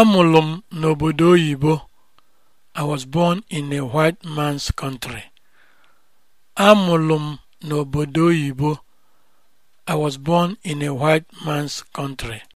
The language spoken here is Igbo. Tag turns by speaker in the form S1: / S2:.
S1: Amụrụ n'obodo oyibo. a white m n'obodo oyibo. I was born in a white man's country.